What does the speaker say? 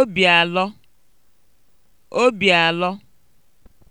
obi alọ obi alọ